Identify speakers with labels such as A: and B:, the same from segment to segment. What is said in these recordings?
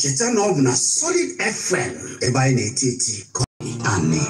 A: cheta ah. na ọ bụ na solid fm ebe anyị na-eti eti kọị anị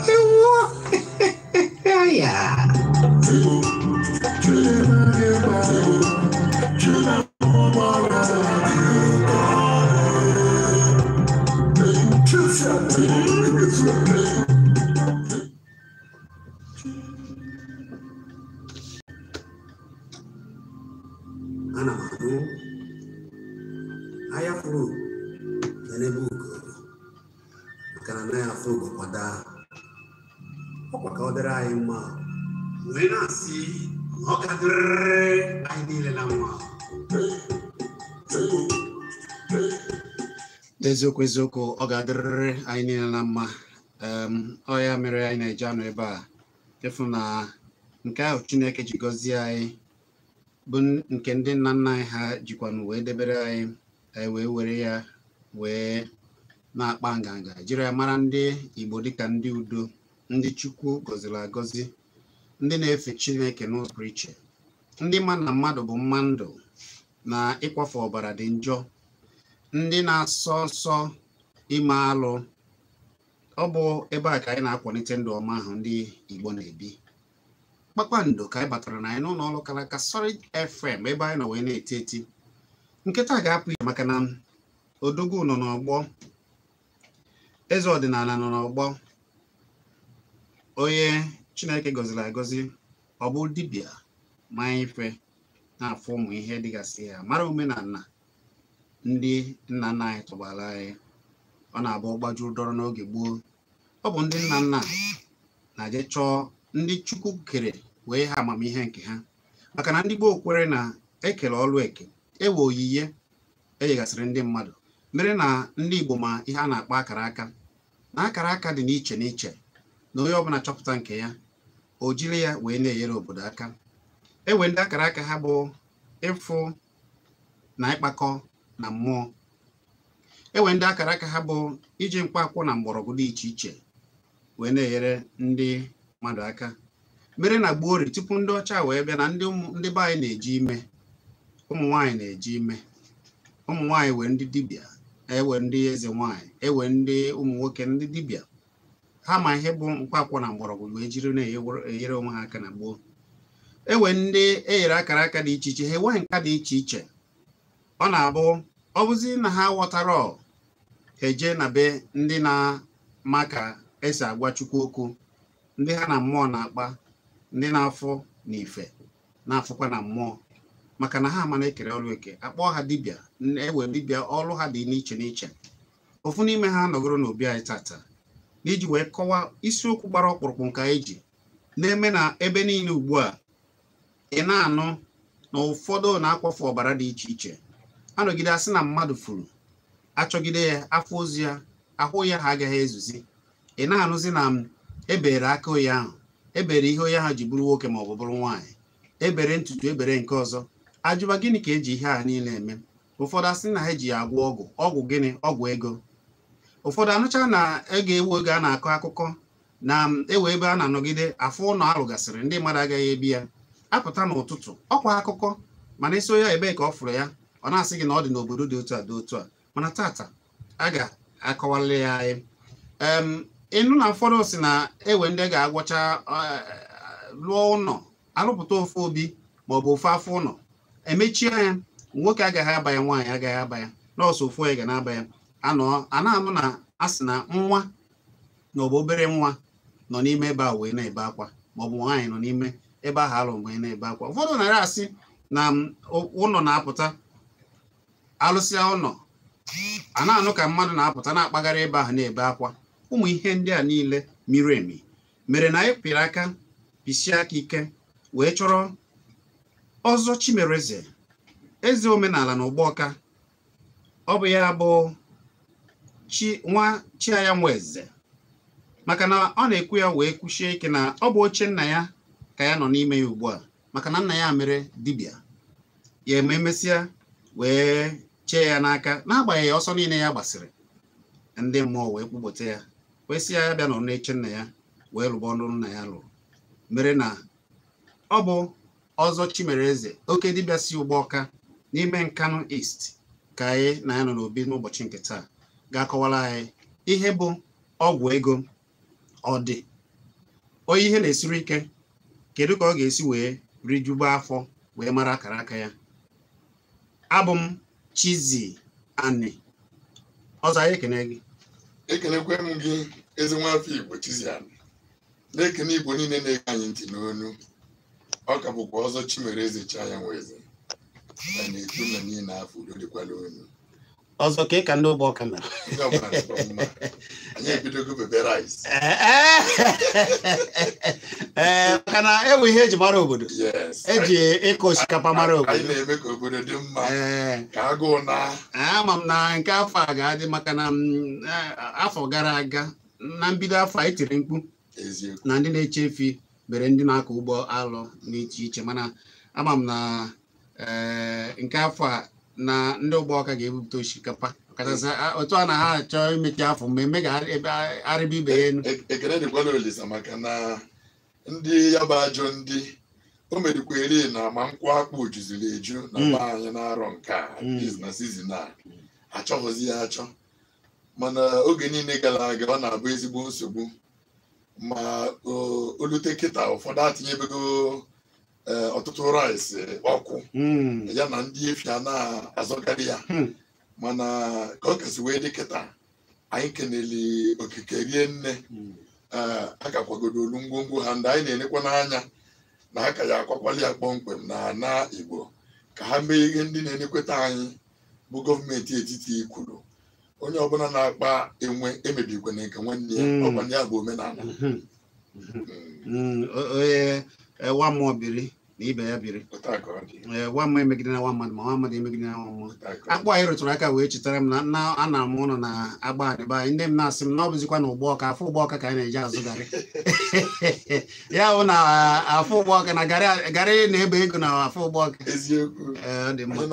A: eziokwu eziokwu ọ ga-adịrịrị anyị niile na mma ọ ya mere anyị na eje anụ ebe a chefu na nke ahụ Chineke ji gọzie anyị bụ nke ndị nna nna anyị ha jikwanụ wee debere anyị anyị e wee were ya wee na-akpa nganga jiri ya mara ndị Igbo dịka ndị udo ndị Chukwu gọziri agọzi ndị na-efe Chineke n'ụzọ iche ndị ma na mmadụ bụ mmadụ na ịkwafe ọbara dị njọ ndị na-asọ nsọ ime alụ ọ bụ ebe a ka anyị na-akwalite ndụ ọma ahụ ndị Igbo na-ebi kpakpando ka anyị batara na anyị n'ụlọ ọrụ kalaka Solid FM ebe anyị nọ wee na-eti eti nkịta ga-apụ ihe maka na odogwu nọ n'ọgbọ eze ọdịnala nọ n'ọgbọ onye Chineke gọziri agọzi ọ bụ dibịa ma ife na-afụ ụmụ ihe dịgasị ya mara omenala ndị nna nna anyị tụbara anyị ọ na-abụ gbajuru dọrọ n'oge gboo ọ bụ ndị nna nna na-eje chọọ ndị Chukwu kere wee ha amamihe nke ha maka na ndị gboo kwere na ekele ọrụ eke ewe oyiye enyegasịrị ndị mmadụ mere na ndị Igbo ma ihe a na-akpọ akara aka na akara aka dị n'iche n'iche na onye ọbụla chọpụta nke ya o jiri ya wee na-enyere obodo aka ewe ndị akara aka ha bụ ịfụ na ịkpakọ na mmụọ enwere ndị akara aka ha bụ iji mkpaakwụkwọ na mgbọrọgwụ dị iche iche wee na-enyere ndị mmadụ aka mere na gboo ori tupu ndị ọcha wee bịa na ndị be anyị na-eji ime ụmụ nwaanyị na-eji ime ụmụ nwaanyị wee ndị dibịa ewe ndị eze nwaanyị ewe ndị ụmụ nwoke ndị dibịa ha ma ihe bụ mkpaakwụkwọ na mgbọrọgwụ wee jiri na-enyere onwe ha aka na gboo ewe ndị e nyere akara aka dị iche iche ha enweghị nka dị iche iche ọ na-abụ ọbụzi na ha ghọtara eje na be ndị na-ama ka esi agwa Chukwu okwu ndị ha na mmụọ na-akpa ndị na-afọ na ife na-afụkwa na mmụọ maka na ha amana ekere ọrụ eke akpọ ha dibịa ewe dibịa ọrụ ha dị n'iche n'iche ofu n'ime ha nọgoro n'obi anyị tata iji wee kọwaa isiokwu gbara ọkpụrụkpụ anyị eji na-eme na ebe niile ugbu a ị na-anụ na ụfọdụ na-akwafu ọbara dị iche iche anọgide asị na mmadụ furu achọgide ya afọ ozu ya ahụ ya ha agaghị ezuzi ị na-anụzi na m ebere aka onye ahụ ebere ihe onye ahụ ji bụrụ nwoke ma ọ bụ bụrụ nwaanyị ebere ntutu ebere nke ọzọ ajụba gịnị ka eji ihe a niile eme ụfọdụ asị na ha eji ya agwọ ọgwụ ọgwụ gịnị ọgwụ ego ụfọdụ anụcha na ego ewu oge a na-akọ akụkọ na ewe ebe a na-anọgide afọ ụlọ alụgasịrị ndị mmadụ agaghị ebi ya apụta n'ụtụtụ ọkwa akụkọ mana isi onye ebee ka ọ fụrụ ya ọ na-asị gị na ọ dị n'obodo dị otu a dị otu a mana tata a ga-akọwalị ya anyị ịnụ na ụfọdụ si na ewe ndị ga-agwọcha eh, lụọ ụlọ alụpụta ofe obi ma ọ bụ ofe afọ ụlọ emechie ya nwoke agaghị abanya nwaanyị agaghị aba ya nọọsụ ofu onye ga na-aba ya anọ a na-anụ na a sị na nwa na ọ bụ obere nwa nọ n'ime ebe a wee na-ebe akwa ma ọ bụ nwaanyị nọ n'ime ebe ahụ alụ mgbe na-ebe akwa ụfọdụ narị asị na mm, ụlọ na-apụta alụsịa ụlọ a na-anụ ka mmadụ na-apụta na-akpagharị ebe ahụ na-ebe akwa ụmụ ihe ndị a niile miri emi mere na anyị pịrị aka pisie aka ike wee chọrọ ọzọ chimereze eze omenala na ụgbọka ọ bụ ya bụ chi nwa chiaya maka na ọ na-ekwu ya wee kwuchie ike na ọ bụ oche nna ya ka ya nọ n'ime ya ugbu a maka na nna ya mere dibịa ya ma emesịa wee chee ya n'aka n'agbanyeghị ọsọ niile ya gbasịrị ndị mmụọ wee kpụpụta ya kwesị ya bịa nọrọ eche nna ya wee lụba ọnụ nna ya lụrụ mere na ọ bụ ọzọ chimereze oke dibịa si ụgbọ n'ime nkanụ est ka anyị na ya nọ n'obi n'ụbọchị nke taa ga-akọwara anyị ihe bụ ọgwụ ego ọ dị onye ihe na-esiri ike kedu ka ọ ga-esi wee rijuba afọ wee mara akara aka ya abụ m Chizie Ani ọzọ anyị ekene gị ekenekwe m gị eze nwafọ Igbo "Chizie Ani
B: na-ekene Igbo niile na-ege anyị ntị n'onu ọ ka bụkwa ọzọ chimere Chaya Nwaeze na-ekwu na niile afọ udo dịkwala
A: ọzọ ka ị ka ndị ụgbọ ọka mere ee maka na ewu ihe ah, eji mara obodo eji ịkụ osikapa mara obodo ama m na nke afọ a ga-adị maka na mm, eh, afọ gara aga na mbido afọ a tiri mkpu na ndị na-eche efi bere ndị na-akọ ụgbọ alụ n'iche iche mana ama m na eh, nke afọ a na ndị ụgbọ ọka ga-ebupụta osikapa ọkachasị otu a na ha achọ imechi afọ mmemme ga-arịba ibe ya elu e-, ekele dịkwana olisa maka na
B: ndị ya bụ ajọ ndị o merikwa eri na ma nkwụ akpụ juziri eju na mba hmm. anyị na-arọ nke a hmm. na sizin a achọghịzi ya achọ mana oge niile gara aga ọ na-abụ ezigbo nsogbu ma olute kịta ụfọdụ atinyebeghị Eh, ọtụtụ rice eh, ọkụ hmm. ya na ndị efia na-azọgarị ya hmm. mana ka ọ kasị wee dị kịta anyị kenele okike rie nne hmm. eh, a ka kwagodolu ngwongwo ha ndị anyị na-enekwa n'anya na aka ya akwakwali ya kpọmkwem na ana Igbo ka ha mee ihe ndị na-enekweta anyị bụ gọọmenti etiti kwuru onye ọbụla na-akpa enwe emebikwana nke nwanne ya ọkwa bụ omenala
A: nwa mmụọ biri na ibe ya biri ee nwa m emegide na nwa mmadụ ma nwa mmadụ emegide na nwa mmụọ akpụ anyị rụtụrụ aka wee chetara m na nna anara m ụlọ na agba adịba anyị ndị m na-asị m na ọ bụzikwa na ụgbọ afọ ụgbọ ka anyị na-eji azụ garị ya bụ na afọ ụgbọ na garị na-ebe ego na afọ ụgbọ ọka eh, ọ dị mma eh,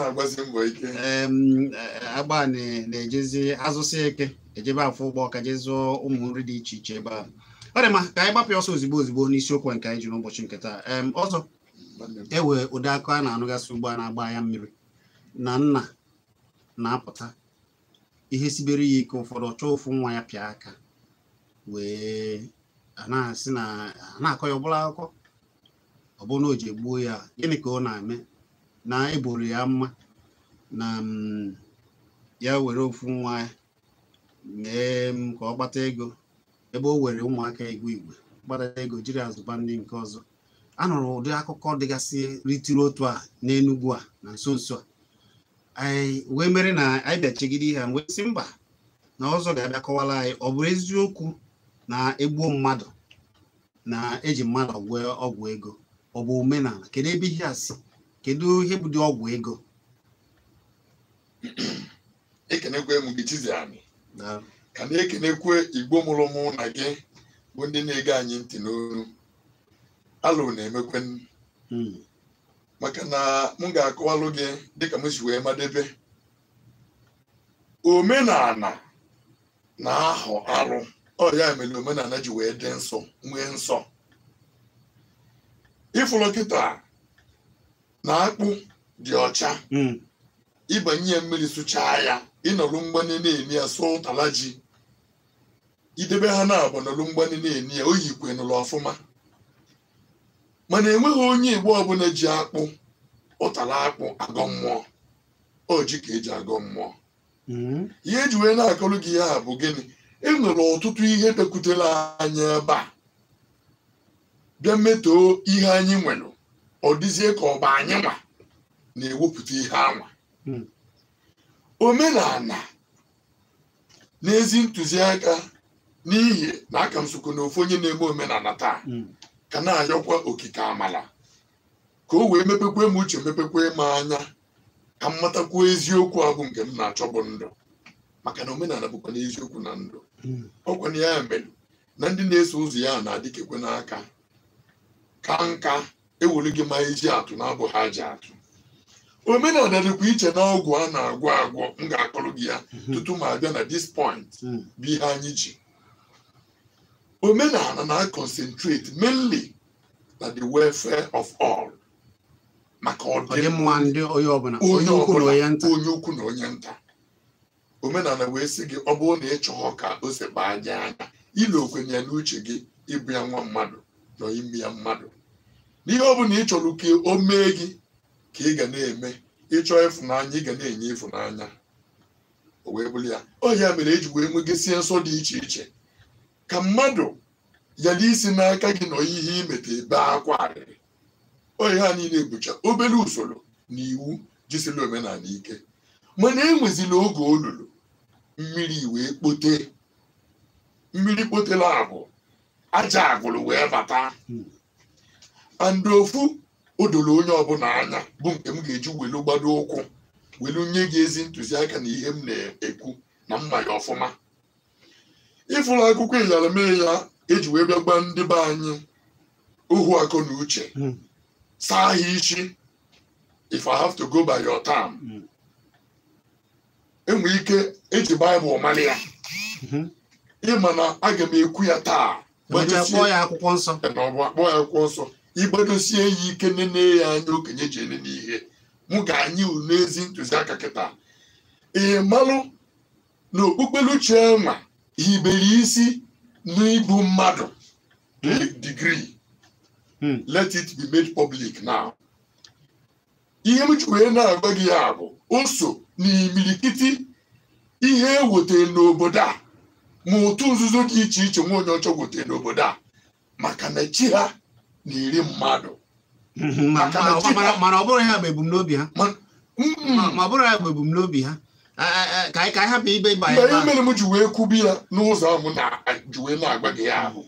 A: agba na-ejezi azụsị eke ejebe afọ ụgbọ ọka jezụọ ụmụ nri dị iche iche ebe ahụ ọ dị mma ka anyị gbapụ ọsọ ozigbo ozigbo n'isiokwu nke anyị ji n'ụbọchị nke taa ọzọ ewe ụdị akụ a na-anụgasị ugbo a na-agba anya mmiri na nna na-apụta ihe sibere ya ike ụfọdụ ọ chọọ ofu nwa ya pịa aka wee na-asị na na akọ ya ọbụla akụkọ ọ bụ na o ji egbuo ya gịnị ka ọ na-eme na eboro ya mma na mm, ya were ofu nwa ya mee ka ọ kpata ego ebe o were ụmụaka igwe igwe gbara ego jiri azụba ndị nke ọzọ anụrụ ụdị akụkọ dịgasị ritiri otu a n'Enugwu a na nso nso a wee mere na anyị bịachigide ihe a wee sị mba na ọzọ ga-abịa kọwara anyị ọ bụrụ eziokwu na egbuo mmadụ na eji mmadụ ọgwụ ọgwụ ego ọ bụ omenala kedu ebe ihe a si kedu ihe bụ dị ọgwụ ego
B: ka na-ekenekwe igbo mụrụ mụ na gị bụ ndị na-ege anyị ntị n'olu alụ na-emekwe hmm. maka na m ga-akọwalụ gị dịka m si wee madebe omenala na-ahọ arụ ọya ya mere omenala ji wee dị nsọ nwee nsọ ịfụrụ kịta na akpụ dị ọcha hmm. ịbanye ya mmiri sụchaa ya ịnọrụ mgbanye na-eme ya sọ ụtala ji idebe ha na-agba n'olu mgbani na-eni ya oyi ikwe nụlụ ọfụma mana enweghị onye igbo ọbụla ji akpụ ụtara akpụ agọ mmụọ oji ka eji agọ mmụọ hmm. ihe eji wee na-akọrọ gị ya bụ gịnị enwere ọtụtụ ihe bịakwutere anyị ebe a bịa metoo ihe anyị nwere ọ dịzie ka bụ anyị nwa na-ewepụta ihe anwa hmm. omenala n'ezi ntụziaka n'ihi na aka m sokwa na ofu onye na-eme omenala taa hmm. ka na-ayọkwa okike amala ka o wee mepekwe m uche mepekwe m anya ka m matakwuo eziokwu ahụ nke m na-achọ bụ ndụ maka na omenala bụkwa na eziokwu na ndụ hmm. ọ na ya mere na ndị na-eso ụzọ ya na-adịkekwe n'aka ka nka ewere gị ma ezi atụ na abụghị ha ji atụ omenala dịkwa iche na ọgwụ a na-agwọ agwọ m ga-akọrọ gị ya hmm. tutu ma abịa na dis point bụ ihe anyị ji omenala na-concentrate mainly na the welfare of all maka ọdịmma
A: onye ukwu
B: na onye nta omenala wee sị gị ọ bụrụ na ị ka ose baa aja anya ile okwenye n'uche gị ịbụ ya nwa mmadụ na ime ya mmadụ n'ihe ọ bụla ị chọrọ ka o mee gị ka ị ga na-eme ịchọ ịfụnanya ị ga na-enye ịfụnanya o wee bụrụ ya ọ ya mere e ji wee nwegasịa nsọ dị iche iche ka mmadụ yara isi n'aka gị nọ ihe imeta ebe akwa arịrị oyi ha niile bụcha obere usoro na iwu jisila omenala ike mana enwezila oge olulu mmiri wee kpote mmiri kpotela abụ aja agwụrụ wee bata andị ofu odoro onye ọbụla anya bụ nke m ga-eji welu gbado ụkwụ welu nye gị ezi ntụziaka na ihe m na-ekwu na mma ya ọfụma ịfụrụ akwụkwọ ịyara ya eji wee bịa gba ndị be anyị ohu akọ na uche hmm. saa ha isi if i have to go by your term hmm. enwe ike eji baịbụl mara ya hmm. ịma na aga m ekwu ya taa akpọ ya akwụkwọ nsọ igbedosie ya ike nene ya anya okenye ji ele n'ihe mụ ga-anyị n'ezi n'ezi ntụziaka kịta ị malụ na okpukpeluchi nwa hibere isi n'ịbụ mmadụ degree hmm. let it be made public now ihe m ji wee na-agwa gị ya bụ oso na imilikiti ihe e n'obodo a ma otu nzuzo dị iche iche nwa onye ọchọ n'obodo a maka
A: na chi ha na-eri mmadụ hmm, hmm, mana ọ bụrụ ya bụ ebumnobi ha ka anyị hapụ ibe ịba anyị mgbe mere m ji wee kwubi ya n'ụzọ ahụ na ji wee na-agba gị ahụ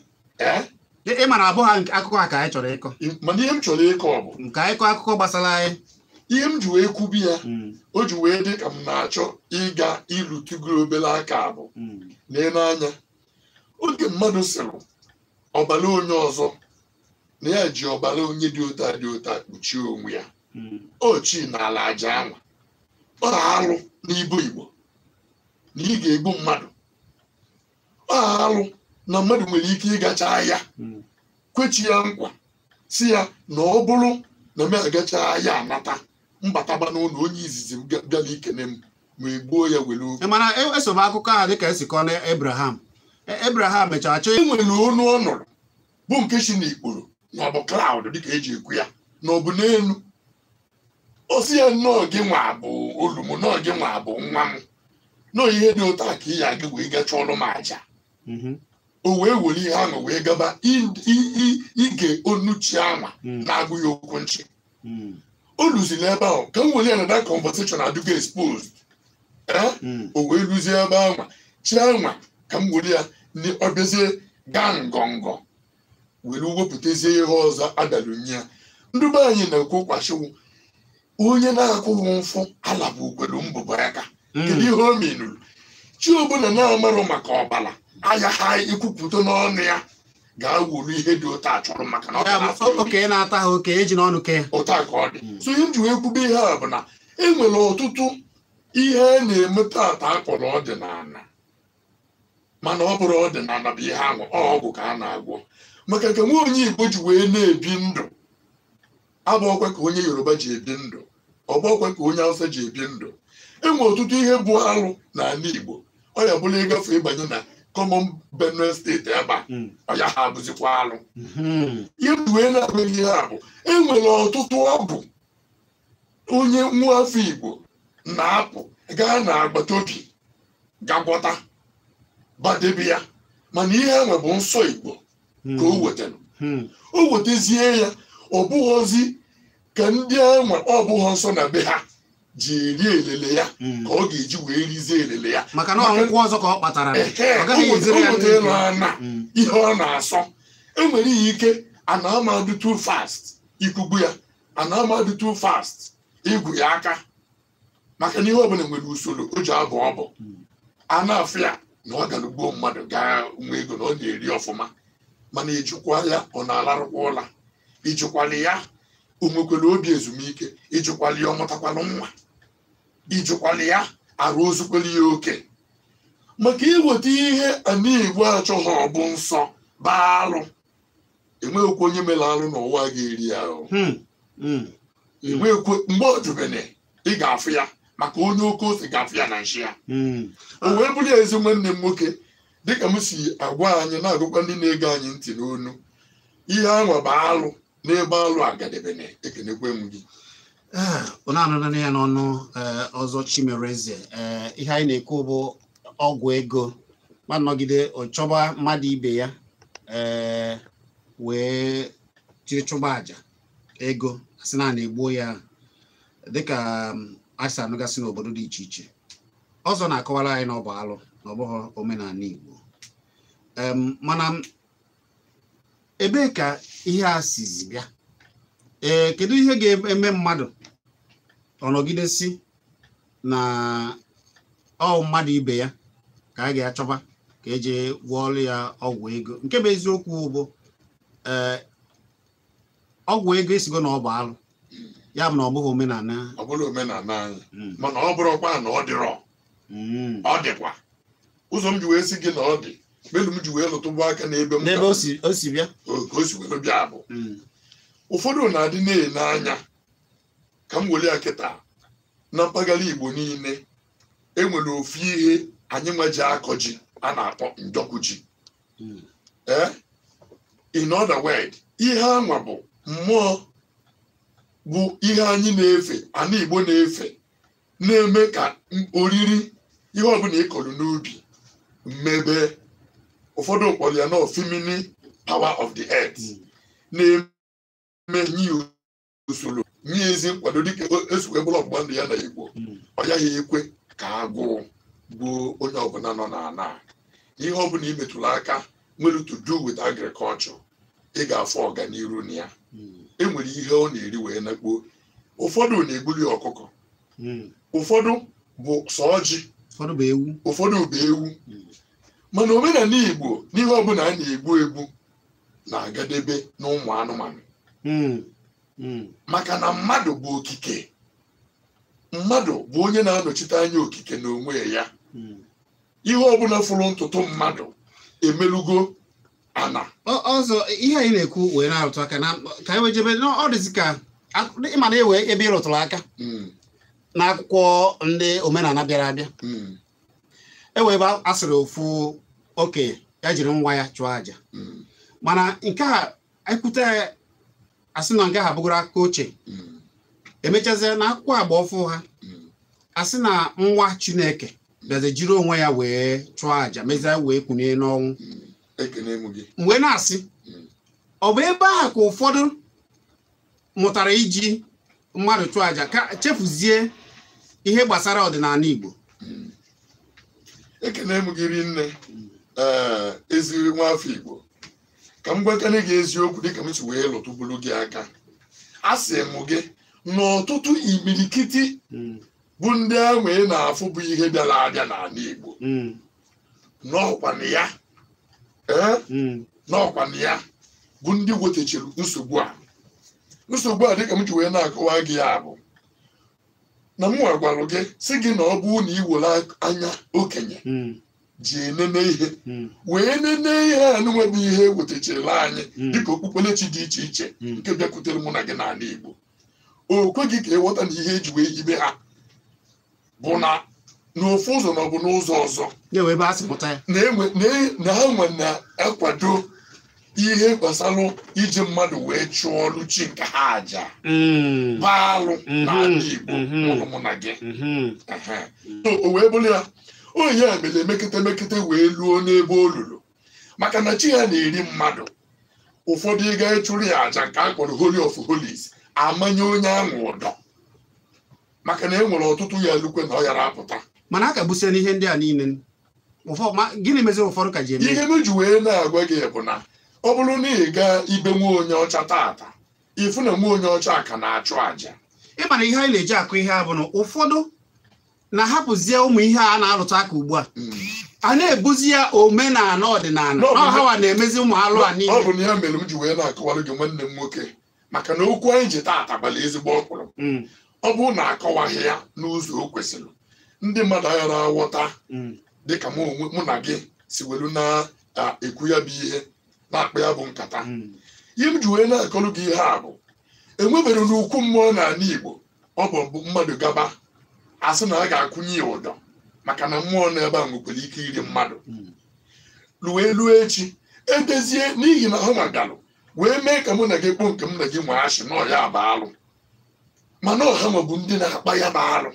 A: ị mara abụọ ha akụkọ ha ka anyị chọrọ ịkọ mana ihe m chọrọ ịkọ bụ ka anyị kọọ akụkọ gbasara anyị
B: ihe m ji wee kwubi ya o ji wee dị ka m na-achọ ịga ịrụtụgo obere aka abụ na-ele anya oge mmadụ sịrị ọbara onye ọzọ na ya ji ọbara onye dị ụta dị ụta kpuchie onwe ya ochi na ala aja anwa ọ na-alụ n'ibu Igbo na ị ga-egbu mmadụ alụ na mmadụ nwere ike ịgacha ahịa kwechi ya nkwa si ya na ọ bụrụ na m agacha ahịa anata
A: mbataba n'ụlọ onye izizi m bịa n'ikene m ma egbuo ya were oge mana eso e m akụkọ ahụ dịka esi kọọ na Abraham e, Abraham mechara chọọ enwere onu ọ nọrọ bụ nke si n'ikporo na ọ bụ dịka eji ekwu ya na ọ bụ n'elu
B: osi ya nnọọ gị nwa bụ olumu nọọ nnọọ gị nwa bụ nwa m nọọ ihe dị ụtọ ka ị ya gị wee gacha ọrụ m aja mm-hmm. o wee were ihe ahụ wee gaba ige onuchi anwa mm. na-agụ ya okwu nchi mm. o luziri ebe ahụ ka m were ya na that conversation adịgo exposed eh? mm. o wee luzie ebe anwa anwa ka m were ya ọ bịazie gaa ngọngọ were wepụtazie ihe ọzọ adalụnye ya ndị anyị na-ekwu kwashiwu onye na-akwụghị mfụ ala bụ ukwelu mbụbọ aka hmm. kedu ihe o menuru chi ọbụla na-amarụ maka ọbara aya ha ikwupụta n'ọnụ ya ga-awuru ihe dị ụtọ achọrọ maka na oke na-ata ha oke eji n'ọnụ ke ụta ka ọ dị hmm. so ihe njiwe ekwube ihe a bụ na e nwere ọtụtụ ihe e a na-eme tata akpọrọ ọdịnala mana ọ bụrụ ọdịnala bụ ihe ahụ ọgwụ ka a na-agwọ maka ka nwa onye Igbo ji wee na-ebi ndụ abụọkwa ka onye Yoruba ji ebi ndụ ọgbakwe ka onye Hausa ji ebi ndụ enwe ọtụtụ ihe bụ alụ n'ala Igbo ọ ya bụla ịgafe ịbanye na kọmọn Benue steeti ebe a hmm. ya ha abụzikwa alụ hmm. ihe na-abụghị ihe a bụ enwere ọtụtụ ọbụ onye afọ Igbo na-apụ gaa n'agbata obi gagwọta badebe ya mana ihe enwe bụ nsọ Igbo ka o hmm. wetara o wetazie ya ọ bụghọzi ka ndị enwe ọ bụghị nsọ na be ha ji eri elele ya hmm. ka ọ ga-eji wee rizie elele ya maka na ọgwụgwọ
A: ọzọ ka ọ kpatara hmm.
B: ihe ọ na-asọ enwere ihe ike ana amadu too fast ikugbu ya ana amadu too fast igwu ya aka maka na ihe ọbụla nwere usoro o ji abụ ọbụ a na-afụ ya na ọ gara mmadụ gaa nwa ego na ọ na-eri ọfụma mana ijikwa ya ọ na-alarụkwa ụla ijikwala ya o nwekwara obi ezumike ịjụkwala ya ọ mụtakwala nwa ịjụkwala ya arụ ya oke maka iweta ihe anigbo achọghị ọ bụ nsọ baalụ enweghịkwa onye mere alụ n'ụwa ga-eri ahụ hmm, hmm. enweghịkwa mgbe ọjụbene ị ga-afụ ya maka onye oke ose ga-afụ ya na nshi ya hmm. o wee bụrụ ya ezi nwanne m nwoke dịka m si agwa anyị na-agụkwa ndị na-ege anyị ntị n'onu ihe ahụ baa alụ n'ebe alụ agadebene ekenekwe m gị
A: ụna ah, anụnana ya n'ọnụ eh, ọzọ chimereze eh, ihe anyị na-ekwu bụ ọgwụ ego ma nọgide ọchọba mmadụ ibe ya eh, wee jiri chụba aja ego asị na na egbuo ya dịka mm, asị anụgasị n'obodo dị iche iche ọzọ na-akọwara anyị na ọ bụ alụ na ọ bụghị omenala Igbo mana ebee ka ihe a sizi bịa ee kedu ihe ga-eme mmadụ ọnọgidesi na ọ mmadụ ibe ya ka a ga-achọba ka eji gwọọlụ ya ọgwụ ego nke bụ eziokwu bụ ee ọgwụ ego esigo na ọ bụ alụ ya bụ na ọ bụghị omenala
B: ọ bụrụ omenala anyị hmm. mana ọ bụrụkwa na ọ dịrọ hmm. ọ dịkwa ụzọ m ji wee si gị na ọ dị melu m ji wee lụtụbụ aka n'ebe m ka o si wee bịa bụ ụfọdụ na-adị na anya ka m were ya na mpaghara igbo niile enwere ofu ihe anyị nweji akọ ji a na-akpọ njọkụ ji hmm. ee eh? in other word ihe anwa bụ mmụọ bụ ihe anyị na-efe ana igbo na-efe na-eme ka oriri ihe ọbụla ị kọrọ n'ubi mmebe ụfọdụ kpọrọ ya na ofemini power of the earth na-eme nye usoro nye ezi nkwado dịka esukwe bụrụ ọgbụgba ndụ ya na igbo ọ yaghị ekwe ka agụụ gbuo onye ọbụla nọ n'ala ihe ọbụla imetụrụ aka nwere to do with agriculture ị ga-afọ ọganiru na ya e nwere ihe ọ na-eri wee nakpuo ụfọdụ na-egbuli ọkụkọ hmm. ụfọdụ bụ sọ ụfọdụ bụ ewu mana omenala igbo n'ihe ọbụla a na-egbu egbu na-agadebe n'ụmụ anụmanụ hmm. Hmm. maka na mmadụ bụ okike mmadụ bụ onye na-anọchite anya okike na onwe ya hmm. ihe
A: ọbụla fụrụ ntụtụ mmadụ emelugo ana ọzọ ihe anyị na-ekwu wee na-arụtụ aka ka ewejebe wee dị ọ dịzi ka ịma na ewe ebe ịrụtụrụ aka n'akwụkwọ ndị omenala bịara abịa ewebe asịrị ofu oke ya jiri nwa ya chụọ aja mana nke a ekwute asị na nke ha bụgoro aka oche emechazie na akwụkwọ agba ọfụ ha asị na nwa chineke bịazi jiri onwe ya wee chụọ aja mezie wee kwunye n'ọnwụ mgbe na-asị ọ bụ ebe ahụ ka ụfọdụ mụtara iji mmadụ chụọ aja ka chefuzie ihe gbasara ọdịnala Igbo ekene m
B: gị rinne eziri eh, nwafọ Igbo ka m gwakene gị eziokwu dịka m si wee lụtụbulu gị aka a sị m gị n'ọtụtụ imirikiti hmm. bụ ndị ahụ ị na-afụ bụ ihe bịara abịa n'ala Igbo hmm. n'ọkwanụ ya eh, hmm. n'ọkwanụ ya bụ ndị wetachiri nsogbu a nsogbu a dịka m ji wee na-akọwa gị ya bụ na m gwara gị si gị na ọ bụ na iwere anya okenye hmm. ji enene ihe hmm. wee nene ihe a na-enweghị ihe ewetachara anyị hmm. dịka okpukperechi dị iche iche nke bịakwutere mụ na gị n'ala Igbo okwe kweghị ka ịghọta e na ihe eji wee yibe ha bụ na n'ofu ụzọ na ọ bụ n'ụzọ ọzọ na ha nwe na-akwado ihe gbasara iji mmadụ wee chụọ ọrụ chi nke ha aja
A: mm. baalụ mm-hmm. na Igbo
B: mm-hmm. ụlọ na gị mm-hmm. o wee bụrụ ya onye a mere mekete mekete wee luo n'ebe olulu maka na chi ya na-eri mmadụ ụfọdụ ịga ịchụrụ ya aja nke a kpọrọ holy of holies amanye onye ahụ ụdọ
A: maka na e nwere ọtụtụ ya lukwe na ọ yara apụta mana a kagbusiana ihe ndị a niile gịnị meziri ụfọdụ ka ji eme ihe meji wee na-agwa gị bụ na ọ bụrụ na ị gaa ibe nwa onye ọcha taata ifu na nwa onye ọcha ka na-achụ àjà ịmana ihe anyị na-eji akụ ihe a bụ na ụfọdụ na-ahapụzie ụmụ ihe a na-alụta aka ugbu a hmm. a na-ebuzi ya omenala ọdịnala ọhawa na-emezi ụmụ alụ a niile ọ bụ na ya mere m ji wee
B: na-akọwara gị nwanne m nwoke maka na okwu anyị ji taata gbara ezigbo ọkpụrụ hmm. ọ bụrụ na akọwaghị ya n'ụzọ o kwesịrị ndị mmadụ aghara aghọta hmm. dịka mụ na gị si welu na-ekwu ya bụ ihe na-akpa ya bụ nkata hmm. ihe m ji wee na-akọlụ gị ihe a bụ enwebere n'ukwu mmụọ n'ala Igbo ọ bụ mbụ mmadụ gaba asị na a ga-akwụnye ya ụdọ maka na mmụọ na-ebe a nwekwara ike iri mmadụ ruo hmm. elu echi edezie n'ihi na ha na wee mee ka mụ na gị kpọọ nke m na gị nwee achị na ọya bụ alụ mana ọha ma bụ ndị na-akpa ya bụ alụ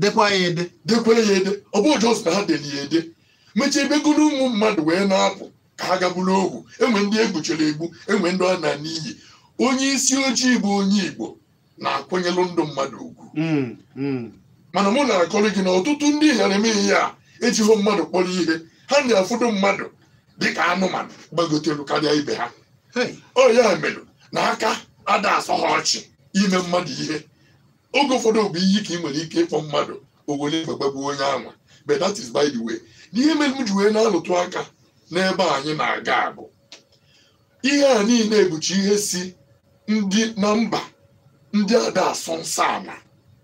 B: dekwa ya ede dekwa ya ede ọ bụ jọs na ha deli ya ede mechie ebegoro ụmụ mmadụ wee na-apụ ka ha gagburu ogwu enwe ndị egbuchara egbu enwe ndị ọ na n'iyi onye isi ojii bụ onye igbo na-akwanyelụ ndụ mmadụ ugwu hmm, hmm. mana mụ na akọrọ gị na ọtụtụ ndị ghara eme ihe a ejighị mmadụ kpọrọ ihe ha na-afụdo mmadụ dịka anụmanụ gbagotelu karịa ibe ha ọ ya mere na aka ada asọ ha ọchị ime mmadụ ihe oge ụfọdụ bụ iyi ka ị nwere ike ịkpọ mmadụ owere gbagbabu onye anwa but that is by the way n'ihe mere m ji wee na-alụtụ aka n'ebe anyị na-aga abụ ihe a niile bụchi ihe si ndị na mba ndị ada asụ nsọ ala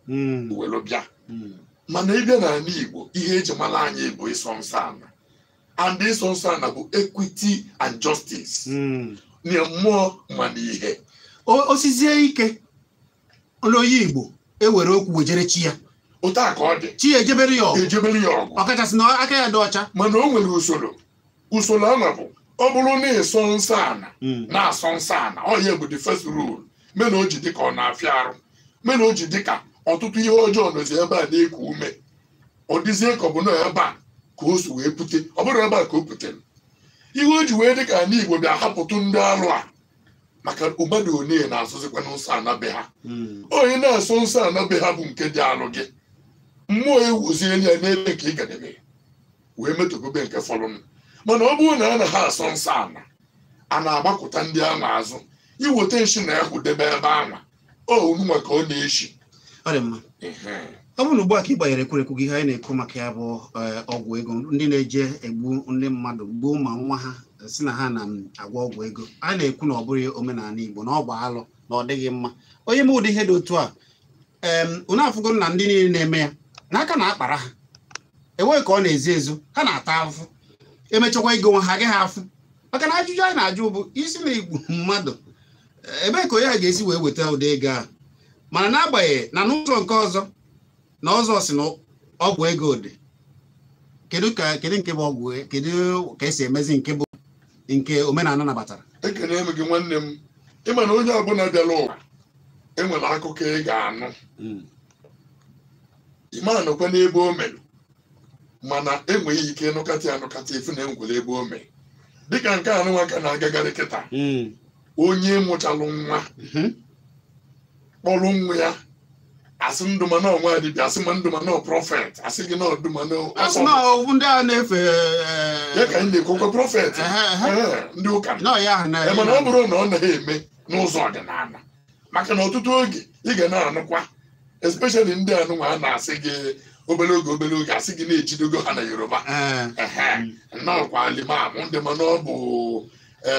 B: hmm. welu bịa hmm. mana ịbịa n'ala Igbo ihe eji mara anyị bụ ịsọ nsọ ala and ịsọ nsọ ala bụ equity and justice hmm. na mmụọ mana
A: ihe osizie ike n'onye Igbo ewere okwu wejere chi ya otu a ka ọ dị chi ejebere ya ọgụ ọkachasị na aka ya dị ọcha mana
B: o nwere usoro usoro a bụ ọ bụrụ na ịsọ nsọ ana hmm. na-asọ nsọ ana ọ ya bụ the first rule mena o ji dịka ọ na-afịa arụ mena o ji dịka ọtụtụ ihe ọjọọ nọzi ebe a na-eku ume ọ dịzie ka ọ bụ na ebe a ka o si wee pute ọ bụrụ ebe a ka o putere ihe o ji wee dị ka ala Igbo bịa hapụtụ ndị arụ a maka ụbada one na-asụzikwa nsọ anabe ha hmm. onye na-asọ nsọ anabe ha bụ nke dị arụ gị mmụọ ewuziela ya n'ebe nke ị gadebe wee metogobe nke fọrọnụ mana ọ bụrụ na a na ha asọ nsọ ala a na-agbakọta ndị ama azụ iweta nshi na ahụ debe ebe anwa onunwa ka ọ na-eshi ọ
A: bụrụ na ugbu a ka ị gbanyere ekwurekwu gị ihe anyị na-ekwu maka ya bụ eh, ọgwụ ego ndị na-eje egbu ndị mmadụ gbuo ma nwa ha si na ha na-agwọ ọgwụ ego a na-ekwu na ọ bụrụ omenala Igbo na ọ bụ alụ na ọ dịghị mma onye m ụdị ihe dị otu a unu na ndị niile na-eme ya n'aka na akpara ha enweghị ka ọ na-ezu ezu ha na-ata ahụhụ emechakwa ego nwa ha agaghị afụ maka na ajụjụ anyị na-ajụ bụ isi na igbu mmadụ ebee ka onye ha ga-esi wee weta ụdị ego a mana n'agbanyeghị na n'ụzọ nke ọzọ na ọzọ si na ọgwụ ego dị kedu ka kedu nke bụ ọgwụ kedu ka esi emezi nke bụ nke omenala nabatara
B: ekele m gị nwanne m ịma na onye ọbụla bịara ụwa enwere akụkọ ị ga-anụ hmm. ịma n'ebe o mere mana enweghị ike nụkata anụkata efu na enwere ebe o mee dịka nke anụ nwa na-agagharị kịta hmm. onye mụchalụ nwa hmm. kpọrọ nwa ya asị ndụmanọ nwa dibịa asị ma ndụmanọ prọfet asị gị na ndụmanọ
A: ndị a na-efe ya
B: eh, ka anyị na-ekwekwe prọfet eh, eh, ndị ụka mana ọ bụrụ na ọ naghị eme n'ụzọ ọdịnala maka na ọtụtụ oge ị ga na-anụkwa especially ndị anụnwa a na-asị gị obere oge obere oge asị gị na-ejidogo ha na yoruba nnọọkwa limam ndị mana ọ bụ e,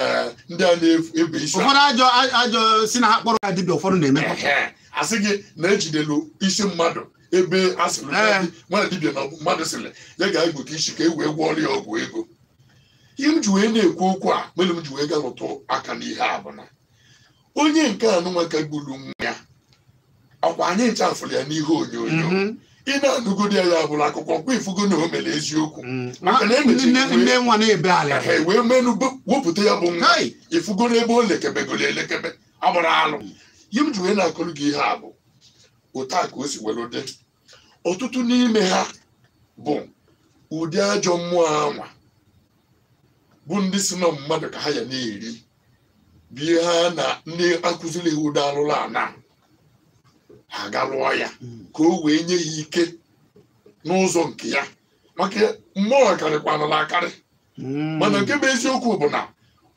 B: ndị a na-ebu isi ụfọdụ
A: ajọ ajọ si na ha kpọrọ ya dibịa ụfọdụ na-eme
B: asị gị na-ejidelu isi mmadụ ebe a sịrị nwa dibịa na mmadụ sịrị ya ga-egbo ka isi ka e wee gwọọrọ ọrịa ọgwụ ego ihe m ji wee na-ekwu okwu a mere m ji wee gaa lụtụ aka n'ihe a bụ na onye nke anụnwa ka gburu nwa ya ọkwa anyị ncha ya n'ihe onyonyo mhm. ị na-anụgodi ya bụrụ akụkọ kwa ifugo na o mere eziokwu mm. e wee menụ wepụta ya bụ nwa ifugo n'ebe o lekebegoro elekebe agbara alụ yi mm. m ji wee na-akụrụ gị ihe a bụ otu a ka o si were dị ọtụtụ n'ime ha bụ ụdị ajọ mmụọ anwa bụ ndị si na mmadụ ka ha ya na-eri bụ ihe ha na ndị akụziri iwu dị alụla ana ha aga lụọ ya ka o wee nye ya ike n'ụzọ nke ya maka mmụọ na akarị
A: hmm. mana
B: nke bụ eziokwu bụ na